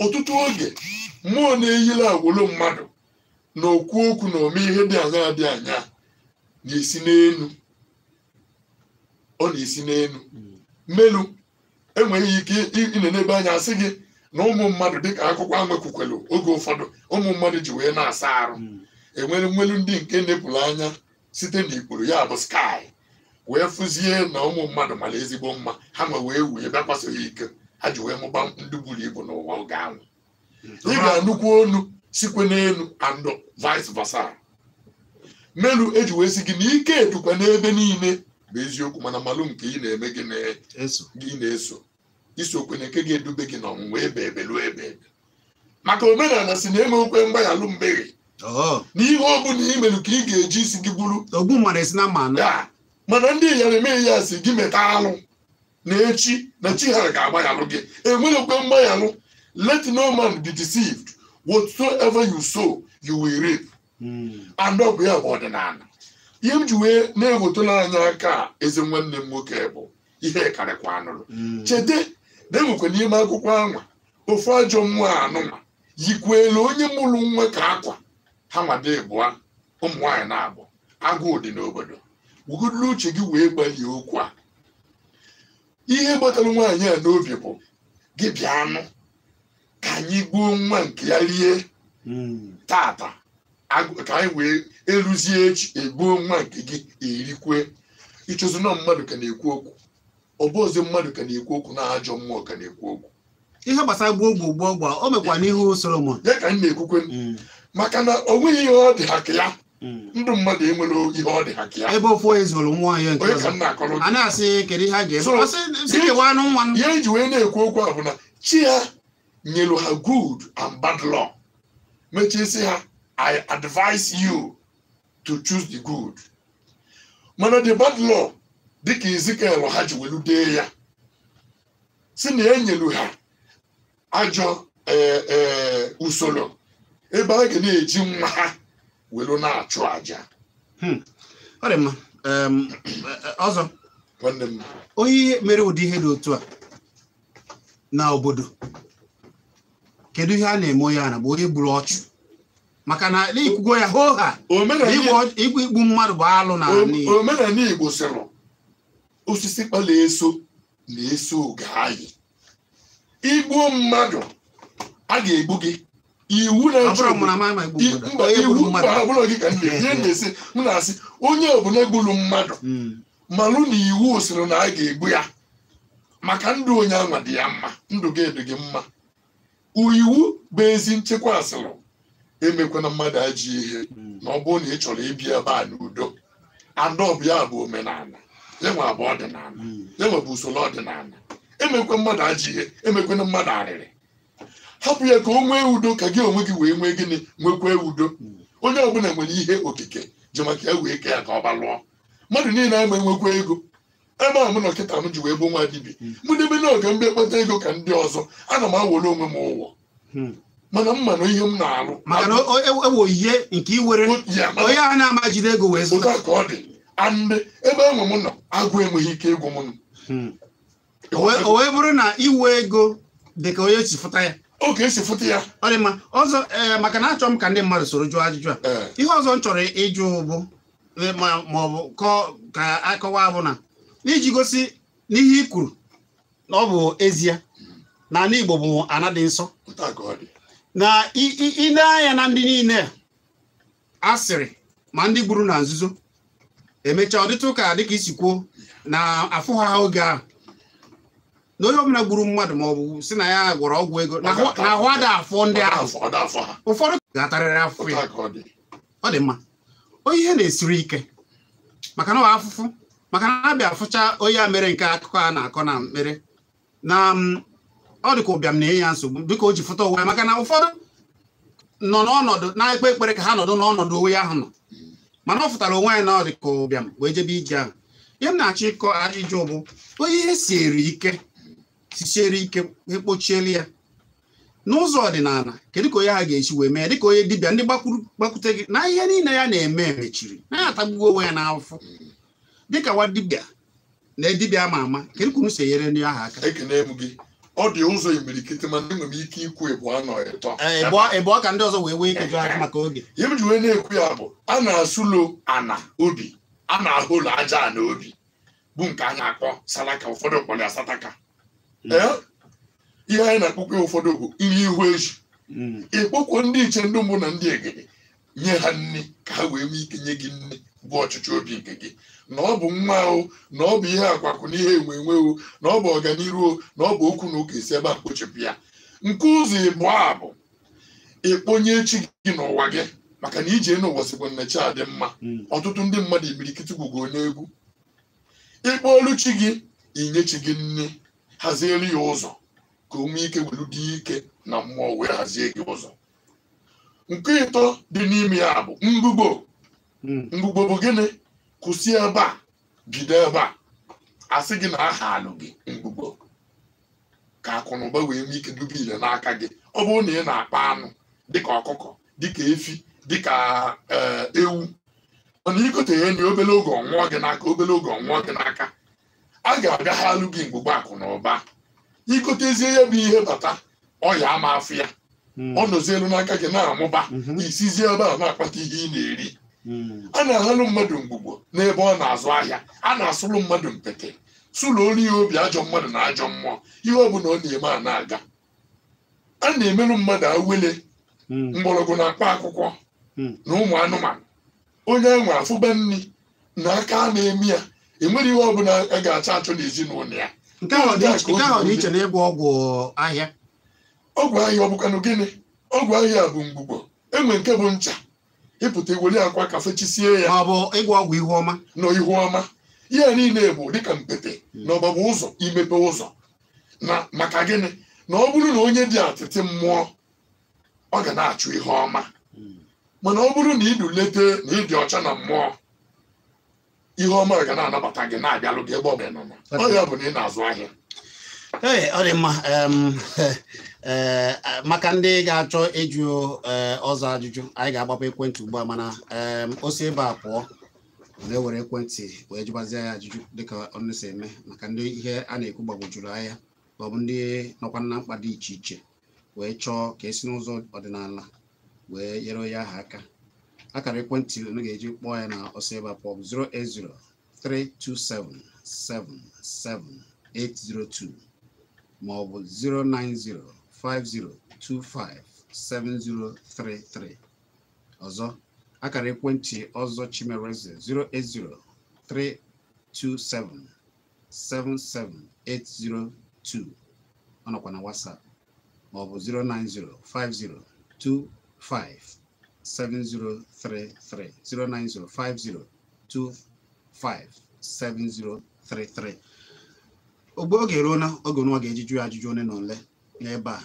B: ọtụtụ oge mmụọ na-eyila agwolo mmadụ na okwu okwu na ome ihe dị anya dị anya na-esi n'elu ọ na-esi n'elu hmm. mmelu enweghị ike ịnọ n'ebe anya asị gị na ụmụ mmadụ dịka akụkọ anwekwukwelu oge ụfọdụ ụmụ mmadụ ji wee na-asa arụ hmm. enwere nwelu ndị nke na anya site n'ikpuru ya bụ skai wee fụzie na ụmụ mmadụ mara ezigbo mma ha ma wee wee bịakwasị ya ike ha ji wee mụba ndị buru ibu n'ụwa oge ahụ ị ga-anụkwu onu sikwe n'elu and vice versa melu eji wee si gị na ike edukwa n'ebe niile bụ eziokwu mana malụ nke ị na-eme gị na-eso isokwenye nke ga-edube gị n'ọnwụnwa ebe ebe lụọ ebe ebe maka omenala si na enwe okwe mgbaghalụ mgbeghe Oh. na ihe ọbụla ị mere ka ị ga-eji isi gị bụrụ ogbu mara esi na mma na mana ndị ịyara eme ya si gị meta alụ na echi na chi ha ga-agbaghalụ gị enwerekwe mgbaghalụ let no man be deceived whatsoever you sow you will reap hmm. and ọ bụ ya bụ ọdịnala ihe m ji wee na-ewetala anya aka eze nwanne m nwoke bụ ihe karịkwa anụrụ hmm. Cheta na enwekwa n'ime akwụkwọ anwa ofu ajọ mmụọ anụma elu onye mụrụ nwa ka akwa ha mada ịbụa ụmụ nwaanyị na-abụ agụụ dị n'obodo wuguduru uche gị wee gbalie okwu a ihe gbatara nwaanyị a n'obi bụ gị bịa anụ ka anyị gbuo nwa nke ya rie tata ka anyị wee eruzie echi egbuo nwa nke gị erikwe ịchụzi na mmadụ ka na-ekwu okwu ọ bụ mmadụ ka na-ekwu okwu na ajọ mmụọ ka na-ekwu okwu ihe gbasara gboo gbuo gboo gba o mekwa n'ihu Solomon ya ka anyị na-ekwukwe mm. maka na o nweghị ihe ọ dị ha ya hmm. ndụ mmadụ enwere ihe ọ dị ha ka ya
A: ebe ofu onye zụrụ nwa ya nke a na-asị kedu ihe a ga-eme ya eji wee na-ekwu okwu a bụ na chi ya nyelu ha good and bad law
B: mechie si ha i advise you to choose the good mana the bad law dịka Ezikiel ha ji welu dee ya si na enyelu ha ajọ eh, eh, usoro ebe a ga na-eji nwa ha welu na-achụ aja
A: hmm. ọ dị mma eh, ọzọ onye mere ụdị ihe dị otu a na obodo kedu ihe a na-eme onye a bụ onye gburu ọchụ maka na ikwugo ya hoo ha igbu igbu mmadụ bụ alụ na
B: omenala Igbo sịrị osisi kpala eso na-eso oge anyị igbuo mmadụ a ga-egbu gị iwu na-esi m na-asị onye ọbụla egburu mmadụ hmm. malụ na iwu sịrị na a ga-egbu ya maka ndụ onye anwa dị ya mma ndụ gị dị gị mma iwu bụ ezi nchekwa asịrị emekwana mmadụ ajị ihe hmm. na ọ bụrụ na ị chọrọ ibi ebe a n'udo adọbụ ya bụ omenala yanwa bụ ọdịnala hmm. yanwa bụ usoro ọdịnala emekwe mmadụ ajị ihe na mmadụ arịrị hapụ ya ka o nwee udo ka gị onwe gị wee nwee gịnị nwekwee udo onye ọbụla nwere ihe okike ji maka e wee kee ya ka ọ balụọ mmadụ niile ama enwekwa ego ebe a mụ na ọkịta m ji wee bụ nwa dibia hmm. mụ debe na oge mbe kpata ego ka ndị ọzọ ana m awere onwe m ụwọ hmm. mana mma na ihe m na-alụ mana ewo ihe e, e, nke iwere onye a na-amajide ego wee zụta ka ọ dị
A: andị ebe enwe m nọ agụ enweghị ike ịgwụ m hmm. o wee bụrụ na iwe ego dị onye chifụta ya oge esi fụta ya ọ dị mma ọzọ eh, maka na achọrọ m ka ndị mmadụ soro jụọ ajụjụ a eh. ihe ọzọ m chọrọ ịjụ bụ eh, ma ọ bụ ka akọwa bụ na iji gosi n'ihe i kwuru na ọ bụ ezie na ala Igbo bụ anadị nsọ na ile anya na ndị niile asịrị ma ndị gburu na nzuzo emechaa ọdịtụ ụka dịka isi kwuo na afụghị oge ahụ na onye ọbụla gburu mmadụ ma ọ bụ si na ya gwọrọ ọgwụ ego na ahụ ada afọ ndị ahụ ụfọdụ ga-atarịrị afọ ya ọ dị mma onye ihe na-esiri ike maka na afụfụ maka na abịa fụcha onye a mere nke akụkọ a na-akọ na mkpere na mm, ọ dị ka ụbịam na-enye ya nsogbu biko o ji fụta onwe ya maka na ụfọdụ nọ n'ọnọdụ na-ekpe ekpere ka ha nọdụ n'ọnọdụ onwe ahụ nọ mana ọ fụtara onwe ya na ọ dị ka ụbịam wee jebe ije ahụ ihe m na-achọ ịkọ ajụjụ bụ onye ihe si ike sisiere ike ekpochielu ya n'ụzọ ọdịnala kedu ka onye ha ga-esi wee mee dịka onye dibịa ndị gbakwute gị na ihe niile ya na-eme mechiri na-atagbuo onwe ya n'afọ dịka nwa dibịa na dibịa ama ama kedu ka unu si enyere ndị ahụ aka ọ dị ụzọ imirikiti mana enwe m ike ikwu ịbụ anọ ịtọ ịbụọ e, ka ndị ọzọ wee
B: wee ikeju aka maka oge ihe ji wee na-ekwu ya bụ a na-asụlo ana obi a na ahụ ụlọ aja ana obi bụ nke a na-akpọ salaka ụfọdụ kpọrọ ya sataka ihe anyị na-akpọkwa ụfọdụ bụ nri ihu eji hmm. ịkpọkwa ndị iche ndị mbụ na ndị egede nye ha nne ka ha wee nwee ike nye gị nne bụ ọchịchị obi nke gị na ọ bụ nwa ahụ na ọ bụ ihe akwakụ na ihe enwe enwe o na ọ bụ ọganihu na ọ bụ okwu na ụka esi ebe a kpochapụ ya nke ụzọ ịbụ a bụ ịkpọnye echi gị n'ụwa gị maka na ije n'ụwa sikwa nnechi adị mma hmm. ọtụtụ ndị mmadụ imirikiti gwụgo onye ịkpọ olu chi gị inye chi gị nne hazielu ya ụzọ ka o ike welu dị ike na mmụọ wee hazie gị ụzọ nke ịtọ dị n'ime ya bụ mgbugbo hmm. mgbugbo bụ gịnị kwụsị ebe a bido ebe a asị gị na aha alụ gị mgbugbo ka akụ na ụba wee nwee ike dube ile n'aka gị ọ bụrụ na ị na-akpa anụ dịka ọkụkọ dịka efi dịka eh, ewu mana ikote ya enyi obele oge ọnwụọ gị n'aka obele oge ọnwụọ gị n'aka a ga-abịaghalụ gị mgbugba akụ na ụba ikotezie ya bụ ihe bata ọya ama afụ ya hmm. ọ nọzielu n'aka gị na-amụba mhm. isizie ebe a na-akpata ihe ị na-eri hmm. a na-ahalụ mmadụ mgbugbo n'ebe ọ na-azụ ahịa a na-asụlụ mmadụ mpete sụlụ olu ihe obi ajọ mmadụ na ajọ mmụọ ihe ọ bụla ọ na-eme a na-aga a na-emelụ mmadụ awele hmm. mgbọrọgwụ na-akpa akwụkwọ na ụmụ anụmanụ onye enwe afụba nri na aka a na-eme ya ị nwere ihe ọbụla a ga-achọ achọ n'ezinụlọ ya nke ahụ dị iche na ịgwọ ọgwụ ahịa ọgwụ ahịa ọ gịnị ọgwụ ahịa bụ mgbugbo enwe nke bụ ncha ịpụta iweli akwa ka fechisie ya ọ bụ ịgwọ ọgwụ ihu ọma na ihu ọma ihe niile bụ dịka mpete hmm. na ọgbagba ụzọ imepe ụzọ na maka gịnị na ọ bụrụ na onye dị atịtị mmụọ ọ ga na-achụ ihe ọma hmm. mana ọ bụrụ na ịdụ na ịdị ọcha na mmụọ ihe ọma ga na-anabata gị na-abịalụ gị ebe ọ bụla bụ na ị na-azụ ahịa
A: ee ọ dị mma e, e, maka ndị ga-achọ ịjụ e, ọzọ ajụjụ anyị ga-agbapụ ekwentị ugbu a mana o si ebe a pụọ na-ewere ekwentị wee jụbazie ya ajụjụ dịka ọnụ si eme maka ndị ihe a na-ekwu gbagwojuru anya ma ọ bụ ndị nọkwa na mkpa dị iche iche wee chọọ ka esi n'ụzọ ọdịnala wee nyere onye ahụ aka akara ekwentị unu ga-eji kpọọ ya na ọsọ ịba pọp 08032777802 ma ọ bụ 09050257033 ọzọ akara ekwentị ọzọ chimereze 08032777802 ọ nọkwa na WhatsApp ma ọ bụ 0905025 7033 09050257033 ogbe oge ruo na oge nwa ga-eji jụ ya ajụjụ one na ole n'ebe a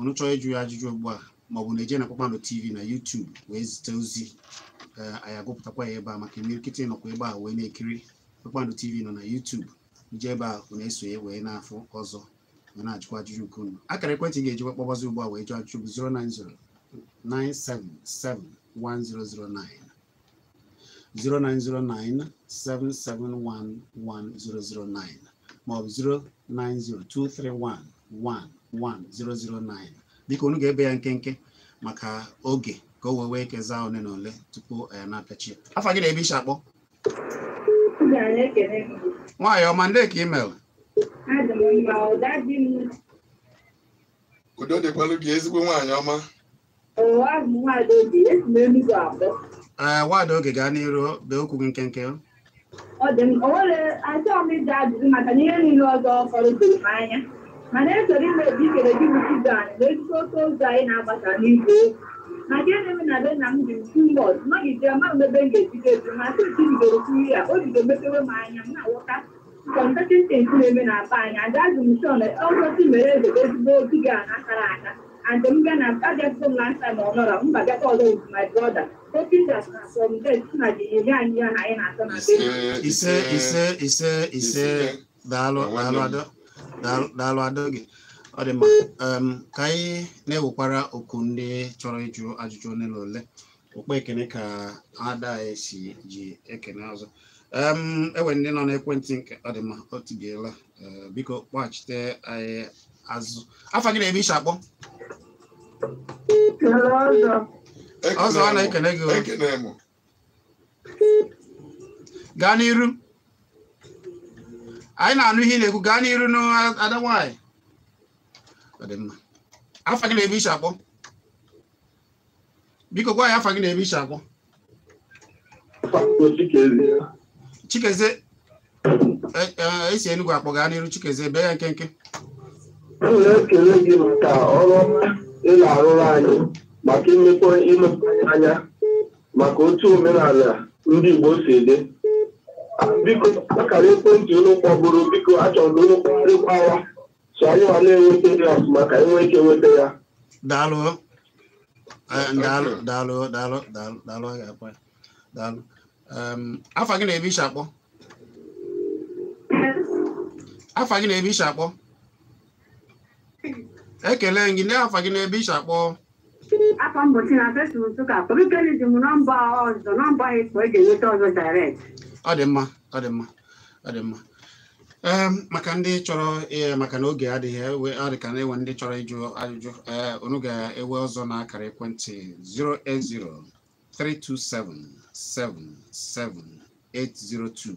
A: unu chọọ ịjụ ya ajụjụ ugbu a maọbụ na eje na kpakpando tv na YouTube wee zite ozi e, anyị agụpụtakwa ya ebe a maka imirikịta nọkwa ebe a wee na-ekiri kpakpando tv nọ na YouTube ije ebe a unu esonye wee na-afụ ọzọ wee na-ajụkwa ajụjụ nke unu akara ekwentị ga-ejikwa kpọbazi ugbu a wee jụọ ajụjụ bụ 090 09077771009 maọbụ 09023111009 biko unu ga-ebe ya nkenke maka oge ka o wee wee kezaa ole na ole tupu eh, ya na-apịachi afọ gị na-ebe akpọ nwaanyị ọma ndị ka imel udo dịkwalụ gị ezigbo nwaanyị ọma ee nwaada oge gaa n'iru bee okwu gị nkenke achọghị m ịjụ ajụjụ maka na ihe niile ọzọ fọrọtụrụ m anya mana esoro imebi ikere gị bụ ibe anyị na ezigbo oke ozi anyị na-agbasa n'igwe na nke na-eme na be nna m dị ntu mbọd nọgide ma ebe m ga-ejide eju ma sị nke bidoro kwuru ya o bido mepewe m anya m na-awọta kọntatentị na-eme na apa anya ada azụ m shọn ọzọsi mere ezebe ezigbo obi gị a na akara aka and m bịa na abịago m last time ọ nọrọ mba bịakwa ọzọ with my brother opidas na uh, from then nna anyị ya na anyị na-atọ ise ise ise ise daalụ daalụ adọ gị ọ dị mma um, ka anyị na-ewekwara oku ndị chọrọ ịjụ ajụjụ ole na ole okpu ekene ka ada anyị e si ji ekene ọzọ um, enwere ndị nọ n'ekwentị nke ọ dị mma o tibiela uh, biko kpọghachite anyị azụ afọ gị na-eme iche akpọ ọzọ a na-ekele gị gaa n'iru anyị na-anụ ihe ị na-ekwu gaa n'iru n'ada nwanyị afọ gị na-eme iche akpọ biko gwa ya afọ gị na-eme iche akpọ chikezie esi e, e, e enugwu akpọ gaa n'iru chikezie bee ya nkenke m na-ekele gị maka ọrụ ị na-arụrụ anyị maka imekọ imepụtanye anya maka otu omenala ndị Igbo si dị biko akara ekwentị ụlọ kpọbụrụ biko achọrọ ụlọ kpọrịkwawa so anyị ma na-enweta ya ọfụma ka anyị nwee ike nweta ya eh, daalụ daalụ daalụ daalụ daalụ daalụ afa gị na-ebe isi akpọ afa gị na-ebe isi akpọ ekele gị ndị afa gị n'ebe iche akpọ afọ mbochi na fesbuk nsụka obikeli ji m nọmba ọzọ nọmba ịkpọ eji enweta ọzọ direct ọ dị mma ọ dị mma ọ dị mma maka ndị chọrọ e, maka na oge adịghị ọ e, dị ka na-enwe ndị chọrọ ịjụ ajụjụ e, unu ga-ewe ọzọ na akara ekwentị 080 327 77802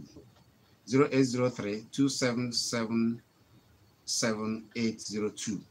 A: 08032777802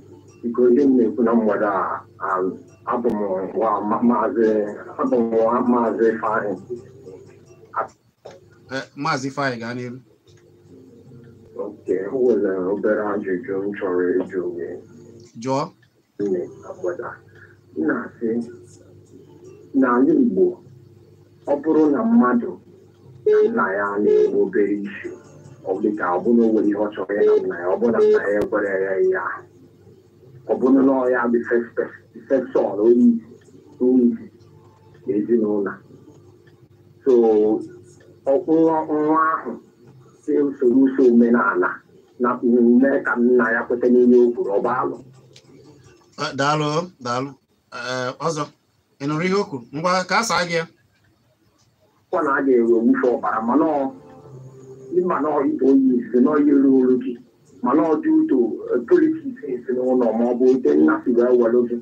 A: m na-ekwu eh, e na mmadụ a abụ m nwa maazị Ifeanyị maazị Ifeanyị gaa n'ihu oke o nwere obere ajụjụ m chọrọ ịjụ gị jụọ na-asị
B: n'ala Igbo ọ bụrụ na mmadụ nna ya na-enwe obere isi ọ dị ka ọ bụrụ onwere ihe ọ chọrọ na nna ya ọ bụrụ na nna ya ekwere ya ihe ahụ ọ e bụrụ na ọ ya bụ fesọl onye isi
A: na ezinụlọ so nwa ahụ si usoro uso omenala na omume ka nna ya kweta n'ime o kwuru ọba alụ daalụ daalụ ọzọ ị nụrụ ihe o kwuru ngwa ka a saa gị ya kwa na aga ga-ewe owufe ọbara mana ọ
B: ịma na ọ ibe onye isi na ọ yiri olu gị mana ọ dị uto politiks
A: si n'ụlọ ma ọ bụ nke nna si wee were gị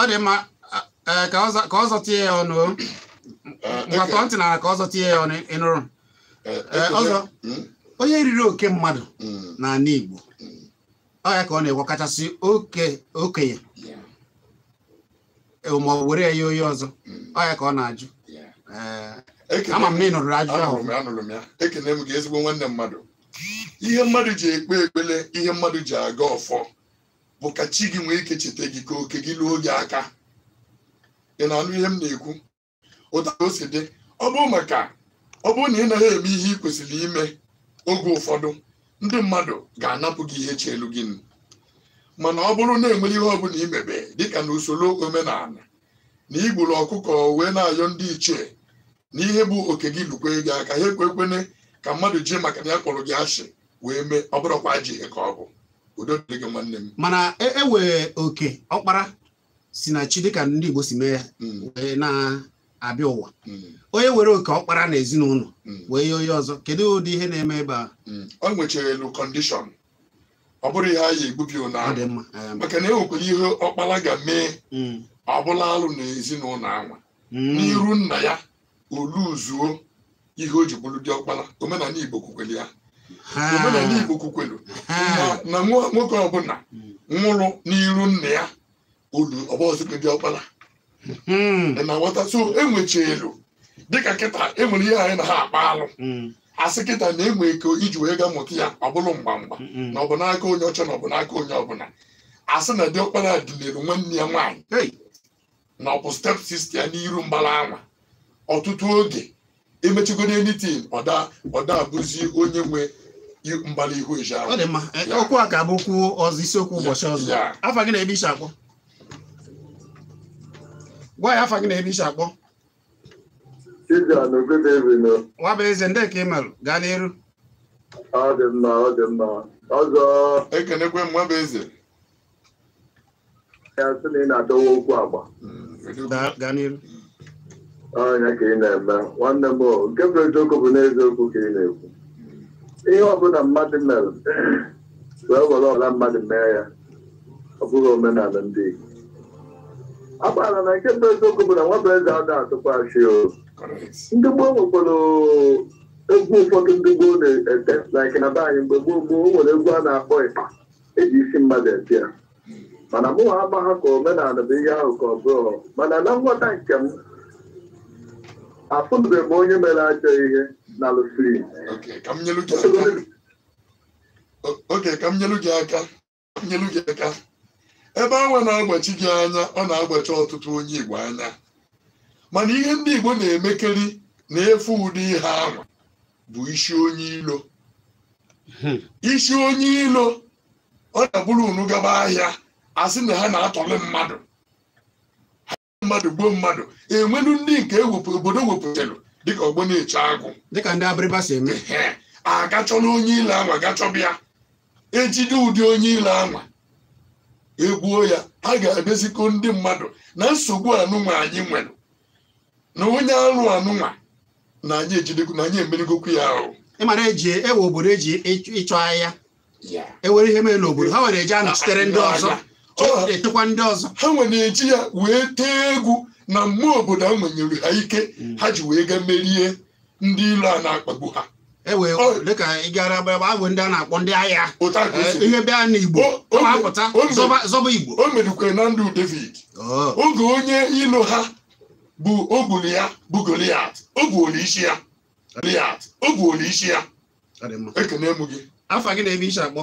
A: ọ dị mma ka ọ zọtie ya ọnụ nwata ntị na ka ọ zọtie ya ọnụ ịnụrụ ọzọ onye riri oke mmadụ n'ala Igbo ọ ya ka ọ na-ekwe kachasị okenye ma were ya oyi ọzọ ọ ya ka ọ na-ajụ ama m na ị ajụjụ ahụ anụrụ
B: m ya ekene m gị ezigbo nwanne mmadụ ihe mmadụ ji ekpe ekpele ihe mmadụ ji aga ọfọ bụ ka chi gị nwee ike cheta gị ka oke gị luo gị aka ị na-anụ ihe m na-ekwu ụta o si dị ọ bụrụ maka ọ bụrụ na ị naghị eme ihe ị kwesịrị ime oge ụfọdụ ndị mmadụ ga-anapụ gị ihe chelu gị mana ọ bụrụ na enwere ihe ọbụla imebe dịka na usoro omenala na igburu ọkụkọ wee na-ayọ ndị ichie n'ihe bụ oke gị lukwe gị aka ha ekwe ekwene ka mmadụ jee maka na ya kpọrọ gị asị wee mee ọ bụrụkwa ajọ ihe ka ọ bụ udo dịrị gị nwanne m
A: mana ewee e oke ọkpara si na chi dịka ndị Igbo si mee ya hmm. wee na-abịa ụwa hmm. onye were oke ọkpara na ezinụlọ hmm. wee ye onye ọzọ kedu ụdị ihe na-eme ebe a ọ nwechara elu kọndishọn ọ bụrụ ihe anyị egbubi ụna maka na enwekwara ihe
B: ọkpara ga-mee ọ bụla alụ na ezinụlọ anwa n'iru nna ya oluzuo ihe o ji bụrụ dị ọkpara omenala Igbo kwukwere ya omenala Igbo kwukwelu na nwoke ọbụla nwụrụ n'iru nna ya olu ọbọzụkwe dị ọkpara hmm. na nwata so enwechelu dịka kịta enwere ihe anyị na ha akpa alụ hmm. asị kịta na-enwe ike iji wee ga mụta ya ọ bụrụ mgba mgba na ọ bụ n'aka onye ọcha na ọ bụ n'aka onye ọbụla asị na dị ọkpara dịlere nwanne ya nwaanyị na ọ bụ step sista ya n'iru mgbara anwa ọtụtụ oge emechigo n'enitin ọda ọda abụzi onye nwe mgbali ihu ije ahụ ọ dị mma
A: okwu e, a ga abụkwu okwu ọzọ isiokwu ụbọchị ọzọ afa gị na-ebe isi akpọ gwa ya afa gị na-ebe isi akpọ nwa bụ eze ndị ka ị marụ gaa n'iru
B: ekenekwe m nwa eze
A: hmm, gaa n'iru
B: ọnya ka ị na-eme nwanne m nke bụ eziokwu bụ n'eziokwu ka ị na-ekwu ihe ọbụla mmadụ mere wee were ọla mmadụ mee ya ọ bụghị omenala ndị Igbo agbara na nke bụ eziokwu bụ na nwabụ eze ada atụkwasị o ndị gboo nwekwara egwu ụfọdụ ndị gboo na-ete like na be mgbe gboo gboo o nwere egwu a na-akpọ ịkpa eji isi mmadụ ete ya mana mụ ha ama ha ka omenala bụ ihe ahụ ka ọ bụrụ mana na nghọta nke m afụnube m onye mere ajọ ihe na oke ka m nyelu gị aka nyelu gị aka ebe anwa na-agbachi gị anya ọ na-agbachi ọtụtụ onye igbo anya mana ihe ndị igbo na-emekeri na-efu ụdị ihe ahụ bụ isi onye ilo hmm. isi onye ilo ọ na-abụrụ unu gaba ahịa a na ha na atọlị mmadụ mmadụ gbuo mmadụ enwelu ndị nke ewepụ obodo wepụtara dịka ọgbọ na-eche agụ dịka ndị abịrịba si eme agachọla onye ile anwa gachọba ejide ụdị onye ile anwa egbuo ya ha ga-abịazikọ ndị mmadụ na nsogbu anụnwa anyị nwere na onye alụ
A: anụnwa na anyị ejidekwu na anyị emerigokwu ya ahụ ịmara eji ewe obodo eji ịchọ ahịa ewere ihe mere n'obodo ha were eji anọchitere ndị ọzọ ga-etekwa
B: ndị ọzọ ha nwe na-eji ya wee tee egwu na mmụọ obodo a nwenyere ha ike ha
A: ji wee ga merie ndị ilo a na-akpagbu ha dịka e ịgara gara agbagba bụ ndị a na-akpọ ndị agha eh, ihe bịa na Igbo apụta zọba Igbo o merukwere
B: na ndụ David oh. oge onye ilo ha bụ ogburu ya bụ
A: Goliat ogbuola isi ya Goliat ogbuola isi ya ekene m gị afa gị na ebe isi akpọ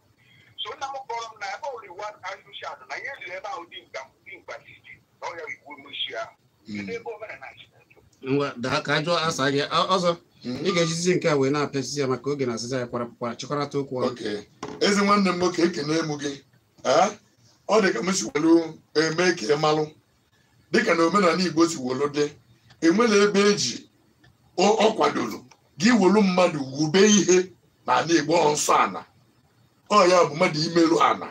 B: so nna m kpọrọ m na ebe oliwa arụsi atụ na ihe ziri ebe ahụ dị mkpa site na ọrịa igbo moshi ahụ kedu ebe omenala
A: ngwa daa ka ajụ asa gị ọzọ ị ga-ejizi nke a wee na-apịachizi ya maka oge na asịza ya kwara kwara chịkọrọta okwu ọnụ ezi nwanne m nwoke ekene mụ gị ọ dị ka m si welu
B: eme ka ị malụ dịka na omenala igbo si welu dị enwela ebe eji ọ kwadoro gị welu mmadụ wube ihe na ala igbo nsọ ala ọ ya bụ mmadụ imerụ ana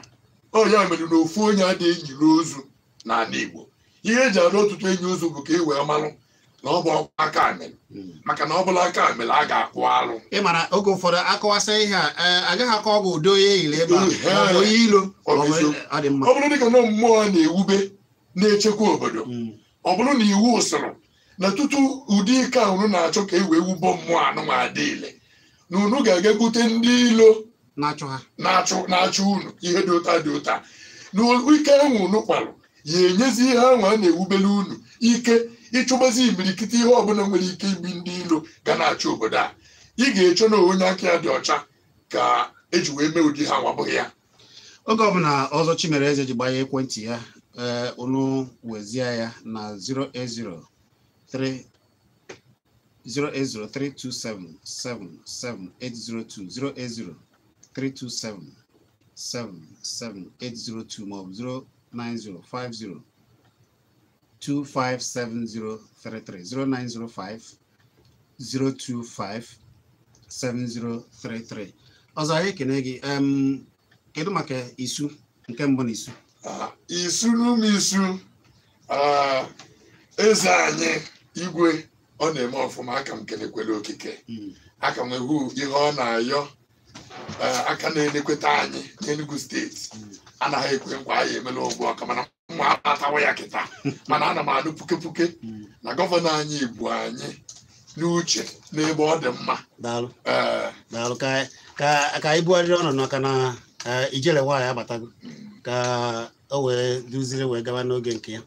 B: ọ ya mere na ofu onye adịghị njiri ozu n'ala Igbo ihe eji arụ ọtụtụ enyi ozu bụ ka e wee malụ na ọ bụ ọkwa aka amịrị hmm. maka na ọ bụla aka amịrị a ga-akwụ alụ
A: ị mara oge ụfọdụ akọwasị ihe a e, agaghị akọ ọgwụ udo onye eyiri ebe a onye ilo e, ọ bụrụ dịka na mmụọ
B: na-ewube na-echekwa obodo hmm. ọ bụrụ na iwu usoro na tutu ụdị ike ahụrụ na-achọ ka e wee wubo mmụọ anụnwa adịile na unu ga-aga ndị ilo na-achụ unu ihe dị ụta dị ụta na ike unu ya enyezi ihe ahụ a na ewubela unu ike ịchụgbazi imirikiti ihe ọbụla nwere ike ibi ndị ilo ga na-achụ obodo a ị ga echo na onye aka ya dị ọcha ka eji wee mee ụdị ha ya
A: oge ọbụla ọzọ Eze ji gbanye ekwentị ya ee wezie ya na 080 327 77802 maọbụ 09050 257033 0905 025 7033 ọzọ anyị ekene gị kedu maka isu nke mbụ na isu ah, isu
B: n'ụmụ isu ah, eze anyị igwe ọ na-eme ọfụma aka m kelekwere okike hmm. aka m hụ ihe ọ na-ayọ Eh, aka na-enekweta anyị enugu steeti anaghị ekwe nkwa anyị emela ugbu ọka mana nwa atawa ya kịta mana ana m anụ puke puke na gọvanọ anyị bụ anyị
A: n'uche n'ebe ọ dị mma eh, ka anyị bugharịrị ọnọdụ maka na eh, ijele nwaanyị agbatago ka o wee duziri wee gaba n'oge nke ya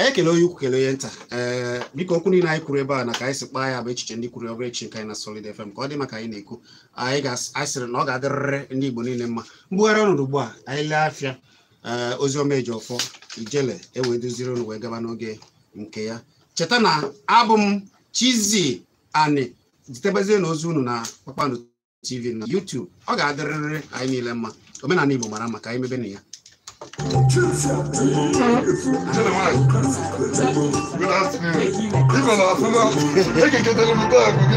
A: anyị ekele onye ukwu kele onye nta ee eh, biko okwu niile anyị kwuru ebe a na ka anyị si kpaa ya bụ echiche ndị kwuru ọbụ echi nke anyị na Solid FM ka ọ dị maka anyị na-ekwu anyị ga-asịrị na ọ ga-adịrịrị ndị Igbo niile mma mbugharị ọnọdụ ugbu a anyị lee afịa ee eh, oziọma eji ọfọ ijele ewee duziri unu wee gaba n'oge nke ya cheta na abụ m Chizzy Ani zitebezie na ozi unu na Kpakpando TV na YouTube ọ ga-adịrịrị anyị niile mma omenala Igbo mara maka anyị mebe na ya Good afternoon. Even after that, I can get a little bag.